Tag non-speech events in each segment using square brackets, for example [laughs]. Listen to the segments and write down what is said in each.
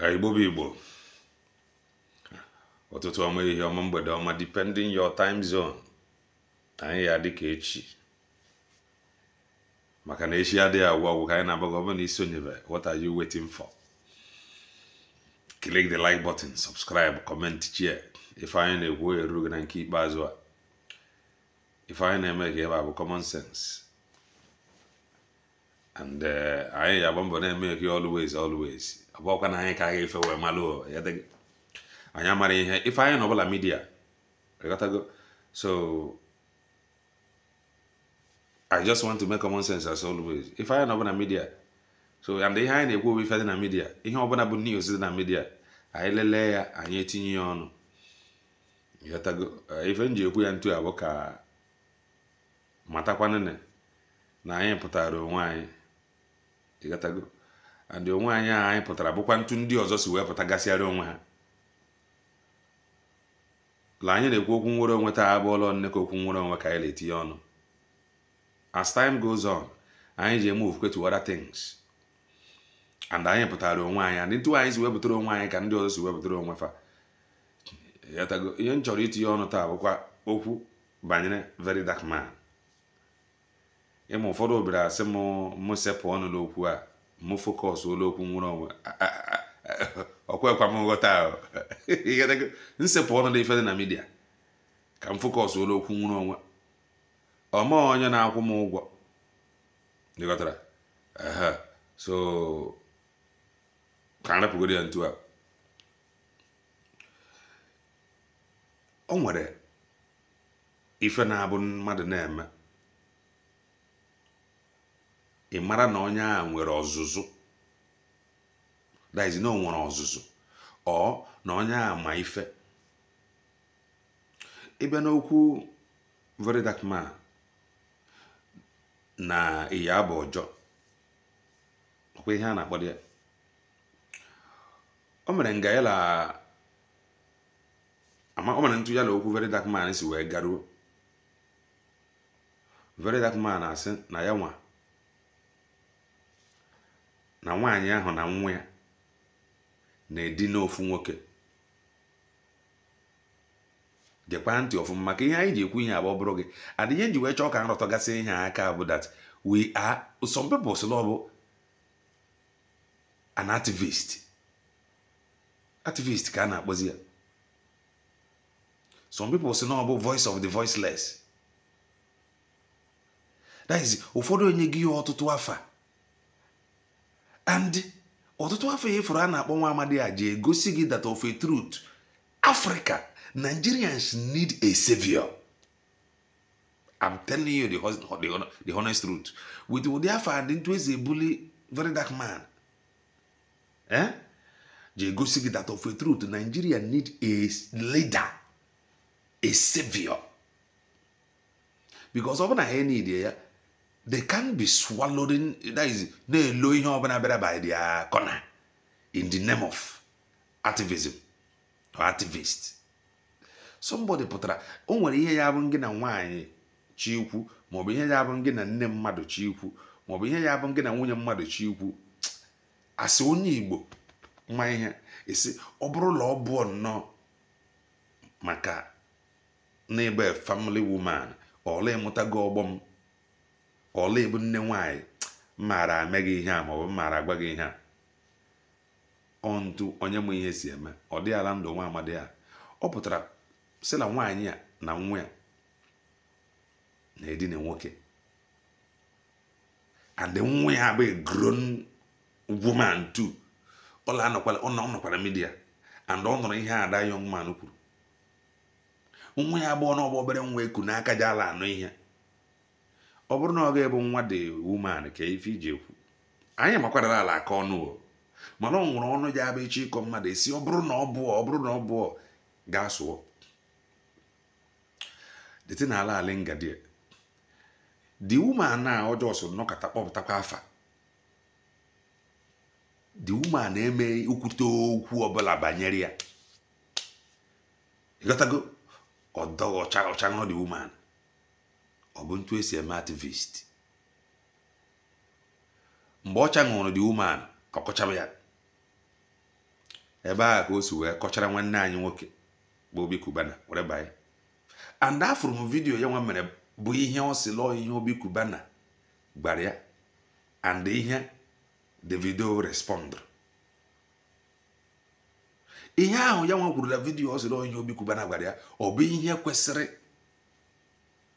Eh, igbo bụ igbo ọtụtụ ọma ihe ọma mgbede ọma depending your time zone anyị ya dịka echi maka na echi adịghị agwụ ọgwụ ka anyị na-agbago ọ bụrụ na isonyebe what are you waiting for click the like button subscribe comment share ife anyị na-ekwu eru gị na nke ikpeazụ a ife anyị na-eme ka ebe bụ common sense and eh, anyị ya agba mbọ na-eme gị always always abụọkwa na anyị ka anyị efe wee malụ anyị amara ihe ife anyị na ọbụla midia go so i just want to make common sense as always ife anyị na ọbụla midia so and ihe anyị na-ekwu ife dị na midia ihe ọbụla bụ niile dị na midia anyị lelee ya anyị etinye ya ọnụ go eh, ife m ji ekwu ya ntu abụ ka matakwanene na anyị pụtara onwe anyị ịghọtago andị onwe anyị anyị pụtara bụkwa ntu ndị ọzọ si wee pụta gasịara onwe ha la anyị na-ekwu okwu nwere onwe taa abụọla nne ka okwu nwere onwe ka anyị na-etinye ọnụ as time goes on anyị ji eme ofufe to other things and anyị pụtara onwe anyị ndị ntụ anyị si wepụtara onwe anyị ka ndị ọzọ si wepụtara onwe fa ihe m chọrọ itinye ọnụ taa bụkwa okwu banyere very dark man ịma ụfọdụ obere asị m sepụ ọnụ n'okwu a mụ fokọs olu okwu nwere onwe ọkwekwa m nghọta nsepụ ọnụ dị ife dị na midia ka m fokọs olu okwu nwere onwe ọma onye na-akwụ m ụgwọ ịghọtara so ka m ya ntu a o nwere ife na-abụ mmadụ na-eme ị mara na onye a nwere ọzụzụ daizi na o nwere ọzụzụ ọ na onye a ma ife ịbịa n'okwu very dark man na ịya bụ ọjọ ọkwa ihe a na-akpọ ya o mere nga yala ama o mere ntụ yala okwu very dark man si wee garuo very dark man na-asị na ya nwa na nwaanyị ahụ na nwa ya na-edina ofu nwoke gekwa ntị ọfụma maka ihe anyị ji ekwu ihe abụ ọbụrụ bụrụ gị adịghị nji wee chọọ ka nrọtọgasị ihe aka bụ that we are some people sị ọ bụ an activist activist ka a na-akpọzi ya some people sị na ọ bụ voice of the voiceless that is ụfọdụ onye gị ya ọtụtụ afa and ọtụtụ afọ ya ịfụrụ a na-akpọ nwa amadi a ji egosi gị that of a truth africa nigerians need a savior i'm telling you the, honest truth with ụdị afọ adị ntụ eze ebuli very dark man eh? ji egosi gị that of a truth nigeria need a leader a savior because ọ bụ na ha need ya they can be swallowing that is na-elo ihe ọbụla bịara by their corner in the name of activism or activist somebody pụtara o nwere ihe ya bụ gị na nwanyị chikwu maọbụ ihe ya bụ gị na nne mmadụ chikwu maọbụ ihe ya bụ gị na nwunye mmadụ chikwu asị onye igbo ma ihe esi ọ bụrụ na ọ bụọ nnọọ maka n'ebe family woman ọla ịmụtago ọgbọ m ọla ebu nne nwaanyị mmara eme gị ihe a maọbụ mmara agwa gị ihe a ọntu onye mụ ihe si eme ọ dị ala ndụ nwa amadi ya ọ pụtara sị na nwaanyị a na nwa ya na-edina nwoke and nwa ya bụ grown woman too ọla nọkwara midia and ọ nụrụ ihe ada young man kwuru nwa ya abụọ na ọgba obere nwa eku n'aka ji ala anụ ihe ọ bụrụ na ọ ga bụ nwa dị wuman ka ife iji ekwu anyị makwarala ala aka ọnụ o mana ọ nwụrụ ọnụ ya abụ echi ịkọ mmadụ esi ọ bụrụ na ọ bụọ ọ bụrụ na ọ bụọ gaa sụọ dịtị na ala ala ngadi di woman a ọjọọ so nnọkọta kpọpụtakwa afa the woman na-eme ikwute okwu ọbụla banyere ya ịghọtago ọdọghị ọcha ọcha ṅụọ the ọ bụ ntu esi eme ativist mgbe ọcha ṅụrụ dị woman ka ọ kọchara ya ebe a ka o si wee kọchara nwanne anyị nwoke bụ obi kubana were banye and afụrụ m vidiyo ya nwa mere bụ ihe ọ si lụọ ihe obi kubana gbara ya and ihe davido respond ihe ahụ ya nwa kwuru na vidiyo ọ si lụọ ihe obi kubana gbara ya ọ bụ ihe kwesịrị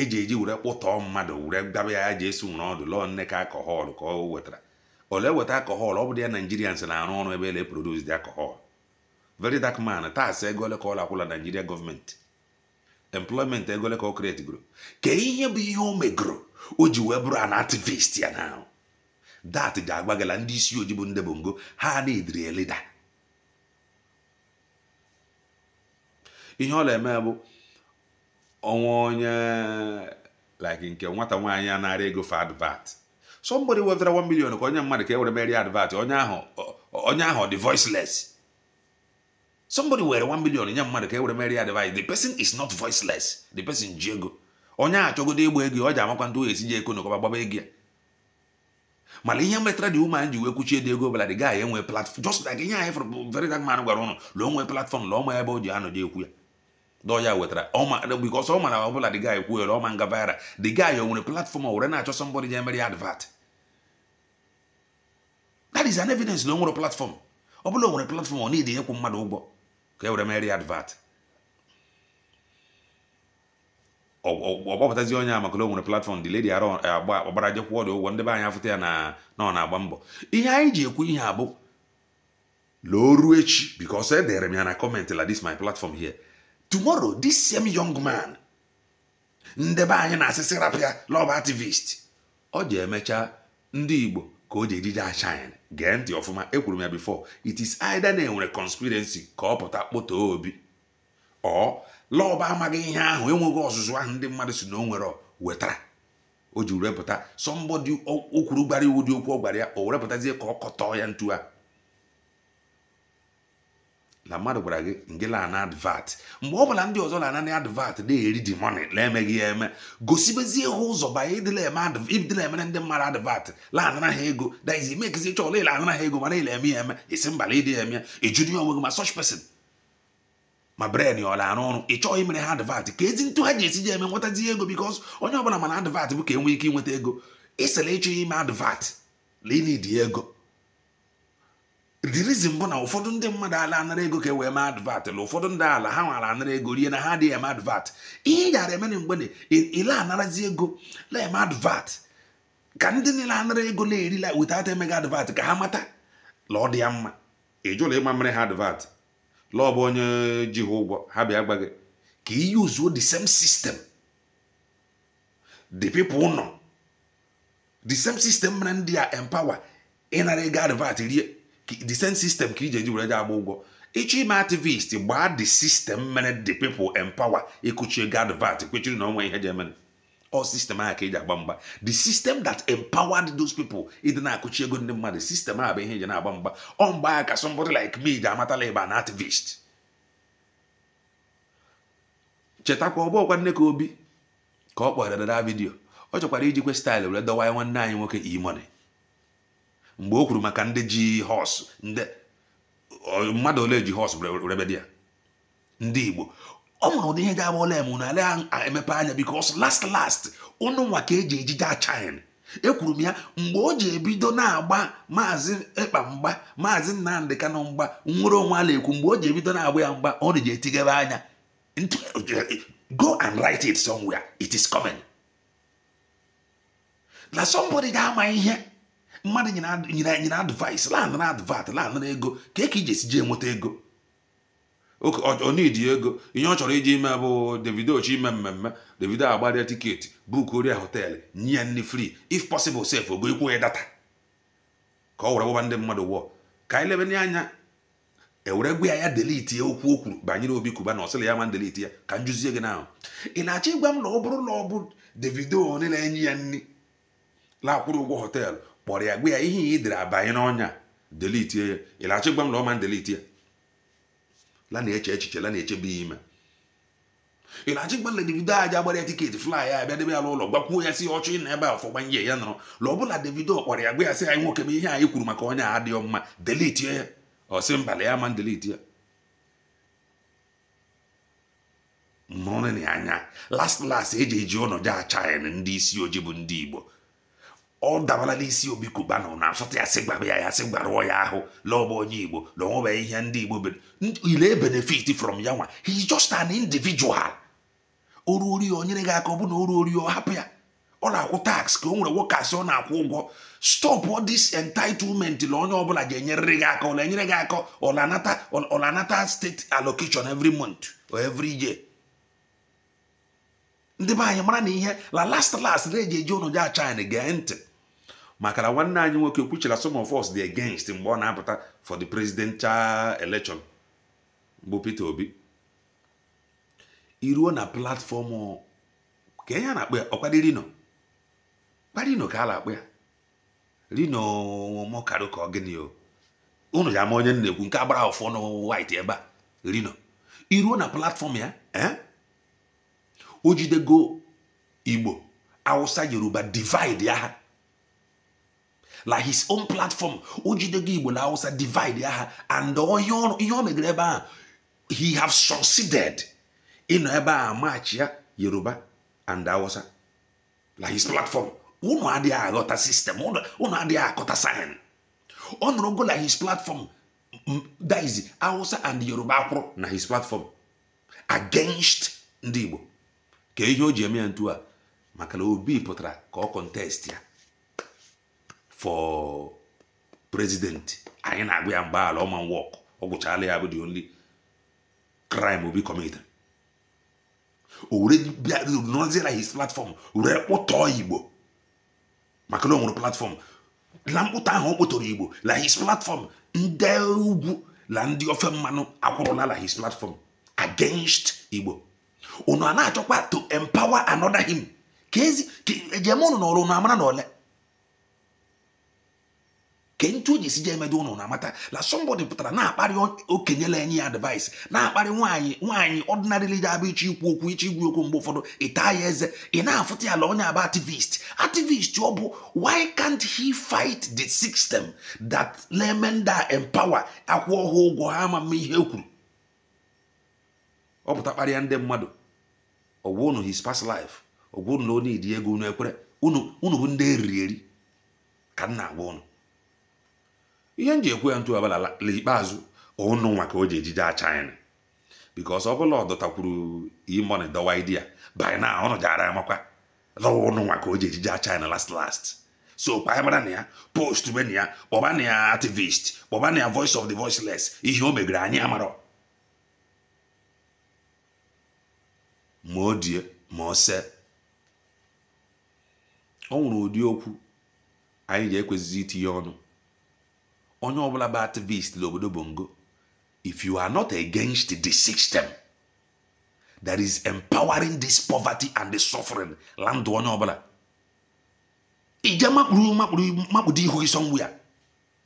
eji eji were kpụtọọ mmadụ were gaba ya ji esi nwere ọdụ lọọ nne ka akọhọl ka ọ wetara ole weta akọhọl ọ bụ dị ya naijirians na-arụ ọrụ ebe ele produs dị akọhọl very dark man taasị ego ka akwụla naijiria gọọmenti employment egole ole ka ọ kreti goro ka ihe bụ ihe o megoro o ji wee bụrụ anativist ya na dat ji agbagala ndị isi ojii bụ ndị bụ ngo ha na-ediri elida ihe ọla eme bụ ọnwa onye like nke nwata nwaanyị a na-ara ego for advert somebody wetara 1 million ka onye mmadụ ka e were merie advert onye ahụ onye ahụ dị voiceless somebody were 1 million nye mmadụ ka e were advert the person is not voiceless the person ji ego onye chọgodo igba ego ọ ji amakwa ndị oyesi ji eko na ọkọba ya mana ihe metara dị ụmụ ji wee kwuchie dị ego ọbụla gaa enwe platfọm just ihe anyị fụrụ gwara ụnụ nwee platfọm ebe o ji anọ ji ekwu ya dọ ya wetara because ọma na ọbụla the guy kwuhere ọma nga viral the guy o nwere platform were na-achọ somebody je mere ya advert that is an evidence na ọ nwere platform ọ bụla platform ọ niile ịkwụ mmadụ ụgwọ ka e were advert ọgbapụtazi onye a maka na o platform the lady eh, agba ọgbara jekwụ ọdụ ụgwọ ya na ọ na-agba mbọ ihe anyị ji ekwu ihe abụ loo echi because e m ya na la my platform tomorrow this same young man ndebe anyị na asịsị rapịa lọb activist ọ ji emecha ndị igbo ka o ji ejide ashine gee ntị ọfụma ekwuru m ya before it is either na enwere conspiracy ka ọ pụta kpọtoo obi ọ lọb amaghị ihe ahụ enweghị ọzụzụ ahụ ndị mmadụ si na o nwere wetara o ji repụta sọmbọdị o gbara iwu dị okwu ọ gwara ya o werepụtazie ka ọ kọtọọ ya ntu a na mmadụ gwara gị nge na advat mgbe ọ bụla ndị ọzọ na-ananị advat na-eri di moni na-emeghị ya eme gosibezie ha ụzọ banye ịdịla emere ndị mmadụ advat lanara ha ego daizi mekizi chọ ọla ịlanara ha ego mana ile eme ya eme isi mbala ịdị ya eme ya ejuru ya onwe gị ma sọch pesin ma bren ọ na-arụ ọrụ ị chọghị imere ha advat ka ezi ntụ ha ji esi ji eme nwetazi ego bikos onye ọbụla mana advat bụ ka enwe ike inweta ego ịsịla ịchọ ime advat na ego the reason bụ na ụfọdụ ndị mmadụ ala anara ego ka e wee mee advat na ụfọdụ ndị ala ha nwara anara ego rie na ha adịghị eme advat ihe ị gara emere mgbe ile anarazi ego na eme advat ka ndị niile anara ego na-erila without emeghị advat ka ha mata la ọ dị ya mma ịjụla ịma mere ha advat la bụ onye ji ha ụgwọ ha bịa gba gị ka iyi uzuo the same system the nọ the same system mere ndị a empower ịnara ego advat rie the same system ka iji eji were agba ụgwọ ịchọ ime activist gbaa the system mere the people empower ịkụchie ego vat kwechiri na ọnwa ihe ji emere ọ sistem ahụ ka eji agba mgba the system that empowered those people ịdị na-akụchi ego ndị mmadụ sistem ahụ bụ ihe eji na-agba mgba ọ mgbe ahụ ka like me ji amatala ịba an activist chetakwa ọ bụọkwa nne ka obi ka ọ kpọrọ dada vidiyo ọ chọkwara ijikwe staịlụ were dọwa nwanne anyị nwoke imone mgbe o kwuru maka ndị ji họs ndị mmadụ ole ji họs rebe ya ndị igbo ọ mụrụ ụdị ihe ga-agba ole m na ala emepe anya bikos last last ụnụ nwa ka e eji ejide achin ekwuru m ya mgbe o ji ebido na-agba maazị ịkpa mgba maazị nnamdị kanụ mgba nwere onwe ala ekwu mgbe o ji ebido na-agba ya mgba ọ na-eji etighebe anya go and write it somewhere it is coming na somebody ga-ama ihe mmadụ nyere nyere advice land na advat land na ego ka e ka iji esi jee enweta ego onidi ego ihe ọ chọrọ iji ime bụ davido chi ime mmemme davido agbaria tiketi buku oria họteelụ nye ya nri fri if possible sef ogo ikwu ya data ka ọ were gbaba ndị mmadụ wụọ ka anyị lebe anya ewere gwa ya ya delete ya okwu o kwuru banyere obi kuba na ọsịla ya ma delete ya ka m gị n'ahụ ị na-achọ ịgwa m na ọ bụrụ na ọ bụ davido niile enye ya nri laakwụrụ ụgwọ họteelụ kpọrọ ya gwa ya ihe ya idere abanye n'ọnya delitie ya ị na-achọ gwa m na ọma ndeliti ya la na-eche echiche la na-eche bụ ime ị na-achọ gwa Davido aja gbara ya tiketi fly ya abịa debe ya n'ụlọ gbakwuo ya si ọchụ ị na ebe a ọfọ gbanye ya nọrọ la ọ bụla Davido kpọrọ ya gwa ya sị anyị nwoke m ihe anyị kwuru maka ọnya adịghị mma delitie ya ọ sị mbala ya ma ndeliti ya mụrụnị anya las las e eji eji ụnọji achaịn ndị isi ojii bụ ndị Igbo ọ dabala n'isi obi kubana na asọta ya sị gbara ya ya sị gbarụọ ya ahụ lọọba onye igbo na ihe ndị igbo ile benefit from ya nwa hi is just an individual oru ori o gị aka ọ bụ na oru ori ọ hapụ ya ọ na-akwụ tax ka o nwere nwoke asị ọ na-akwụ ụgwọ stop all this entitlement na onye ọbụla ga-enyerịrị gị aka ọ enyere gị aka ọ na-anata ọ na state allocation every month or every year ndị be anyị mara na ihe la last last na-eji eji ụnụ ja achina gee ntị maka na nwanne anyị nwoke kwuchara some of us the against mgbe ọ na-apụta for the presidential election bụ Peter Obi iruo na platform ka ihe a na-akpọ ya ọkwadị rino kparino ka a na-akpọ ya rino mọkarụ ka ọ gịnị o unu ya ama onye na-ekwu nke agbara ọfọ na white ebe a rino iruo na platfọm ya eh? o jidego Igbo Awụsa Yoruba divide ya like his own platform o jidego igbo na hausa divide aha and ihe ọ megere ebe ahụ he have succeeded ịnọ ebe a maachị ya yoruba and hausa Like his platform unu adịghị aghọta sistem unu adịghị akọta sayen ọ nụrụ go na his platform that is hausa and yoruba akwụrụ na his platform against ndị igbo ka ihe o ji eme ya ntu a maka na obi pụtara ka ọ kọntest ya for president anyị na-agụ ya mgbaala ọma wọk ọ gwụchaala ya bụ the only crime obi committed o were bịa his platform were kpụtọọ igbo maka na o nwere platform na mkpụta ahụ ọ kpụtọrọ igbo la his platform ndị ugwu la ndị ofe mmanụ akwụrụla la his platform against igbo unu a na-achọkwa to empower another him ka ezi ejem ụnụ na ọrụ unu amara na ole ke ntu o ji si je emedo ụnụ na-amata na somebody pụtara na-akparị okenyela enyi ya advice na-akparị nwaanyị nwaanyị ọdịnarịli ji abụ ichi ikwu okwu ichi igwu okwu mgbe ụfọdụ ịta ya eze ị na-afụta ya la onye abụ activist activist ọ bụ why can't he fight the system that lemenda empower akwụ ọhụụ ụgwọ ha ama mma ihe kwuru ọ pụta kparịa ndị mmadụ ọgwụ ụnụ his past life ọgwụ ụnụ na onye idi ego unu ekwere unu bụ ndị eriri eri ka m na-agwa ụnụ ihe m ji ekwe ya ntu abalala ikpeazụ ụnụ nwa ka o ji ejije achina bikos ọ bụla ọ dọtakwuru imoni dọwa idia by na ọnụ jara ya makwa lọwa ụnụ nwa ka o ji ejije achina last last so kpaabara na ya post mena ya kpọba na ya activist kpọba na ya voice of the voiceless ihe o megere anyị amarọ ma o die ma o se ọ nwụrụ ụdị okwu anyị ji ekwezizi itinye ọnụ onye ọbụla bụ activist n'obodo bongo if you are not against the system that is empowering this poverty and the suffering landụ onye ọbụla ije makpuru makpuru makpudo ihu gị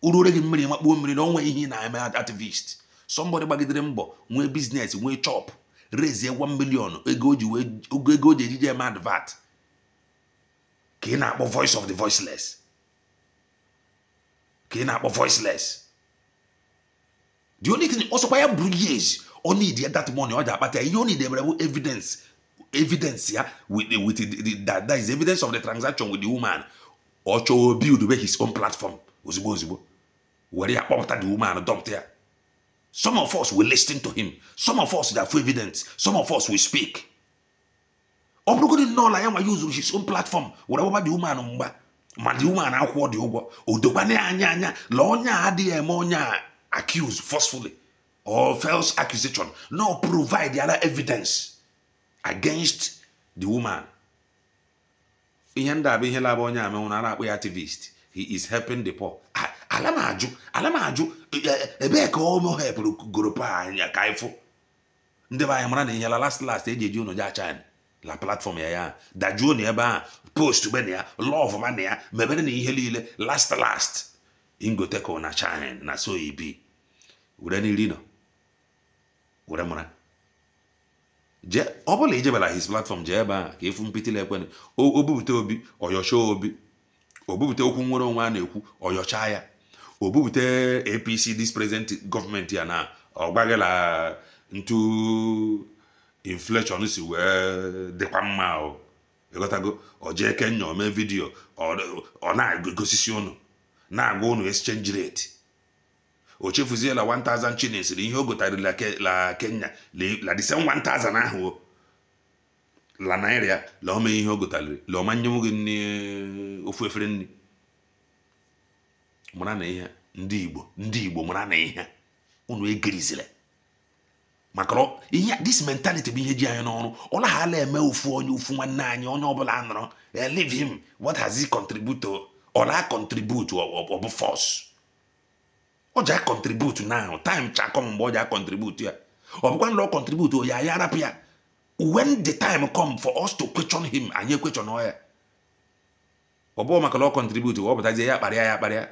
uru ure gị mmiri makpuo mmiri na onwe ihe na-eme activist somebody gbagidere mbọ nwee biznes nwee chop rezie 1 million ego o ji ejije eme advert ka ị na-akpọ voice of the voiceless ka ị na-akpọ voiceless the only thing ọsọkwa ya bụrụ years only need that money ọ ji akpata ya ihe ọ need emere bụ evidence evidence ya with, with the, that, that is evidence of the transaction with the woman ọ chọọ build be his own platform ozugbo ozugbo were ya kpọpụta the woman dọpụta ya some of us will listen to him some of us ga-afụ evidence some of us will speak ọ bụrụgodị nnọọ na ya nwa ya uzuru his own platform were gbaba the woman mgba um, ma dị na akwụkwọ dị ụgwọ odokwana ya anya anya la onye a adịghị eme onye a accused forcefully or false accusation no provide other evidence against the woman ihe ndị abụ ihe laba onye amenwụ na a akpọ ya activist he is helping the poor ala m ajụ ala m ajụ e, e, ebee ka ọ hepụrụ goropa anya ka ịfụ ndị be anyị mara na ihe la last last eji eji ụnụ ja china la platform ya ya dajuo na ebe a post be na ya lọv ma na ya mebere na ihe niile last last ingoteko na china na so e were n'iri nọ were mara jee ọ bụla ijebara his platfọm jee ebe a ka efu mpịtịla ekwenụ obubute obi ọyọcha obi obubute okwu nwere onwe a na-ekwu ọyọcha ya obubute apc dis present gọọmenti ya na ọgbaghịla ntu inflation si wee dịkwa mma o ịghọtago eke kenya ome vidiyo ọ na-egosisi ụnụ na-agwa ụnụ exchange rate o chefuziela 1000 shillings ihe o gotarila la kenya la december 1000 ahụ o la naira la ome ihe o la ọma nye gị ofu efere nri mara na ihe ndị igbo ndị igbo mara na ihe ụnụ egerizila maka ihe dis mentality bụ ihe ji anyị n'ọrụ ọ naghala eme ofu onye ofu nwanne anyị onye ọbụla a eh, leave him what has he contribute ọ force ọ contribute time mgbe ọ ya ọbụkwa ya arapụ ya when the anyị ya na ọ contribute ya kparịa ya kparịa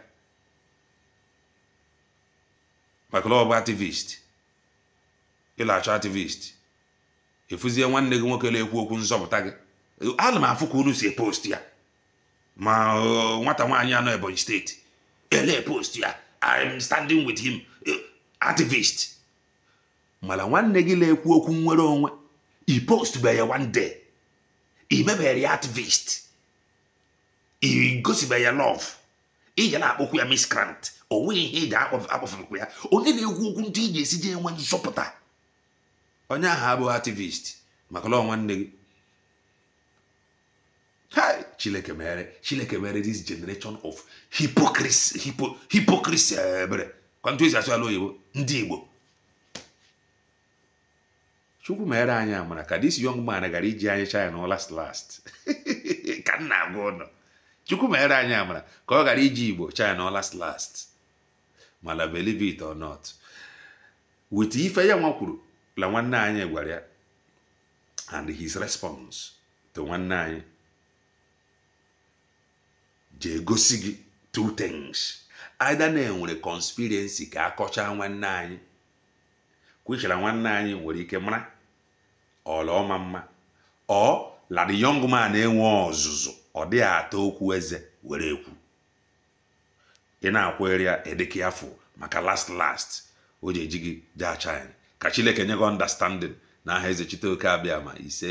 maka na ọ activist ịlachọ activist efuzie nwanne gị nwoke na-ekwu okwu nzọpụta gị ana m afụ ka unu si epost ya ma uh, nwata nwaanyị anọ Ebonyi steeti ele post ya I'm standing with him uh, ativist. mana nwanne gị na-ekwu okwu nwere onwe i post ya one day i mebere ya ativist, i gosibe ya love ije akpọkwu ya miss o onwe ihe iji akpọfụkwa ya onye na-ekwu okwu ndị ị ga-esi je enwe nzọpụta onye ahụ abụghị ativist maka na ọ nwanne gị Hi, Chileke mere Chileke mere this generation of hypocrisy hypo, hypocrisy eh, ebere kwantu esi asụ ala oyibo ndị Igbo Chukwu mere anyị amara ka this young man gara iji anyị China na last last [laughs] ka nna agwa ụnụ Chukwu mere anyị amara ka ọ gara iji Igbo China na last last mana believe it or not wit ife ya nwa kwuru la nwanne anyị gwara ya and his response to nwanne anyị jee gosi gị two things either na enwere conspiracy ka akọchaa nwanne anyị kwechara nwanne anyị nwere ike mara ọla ọma mma ọ la yong young man enwe ọzụzụ ọ dịghị atọ okwu eze were ekwu ị na-akwere ya edeke afọ maka last last o ji eji gị ka chineke nye gị ọndastandin na aha eze oke abịa ma ise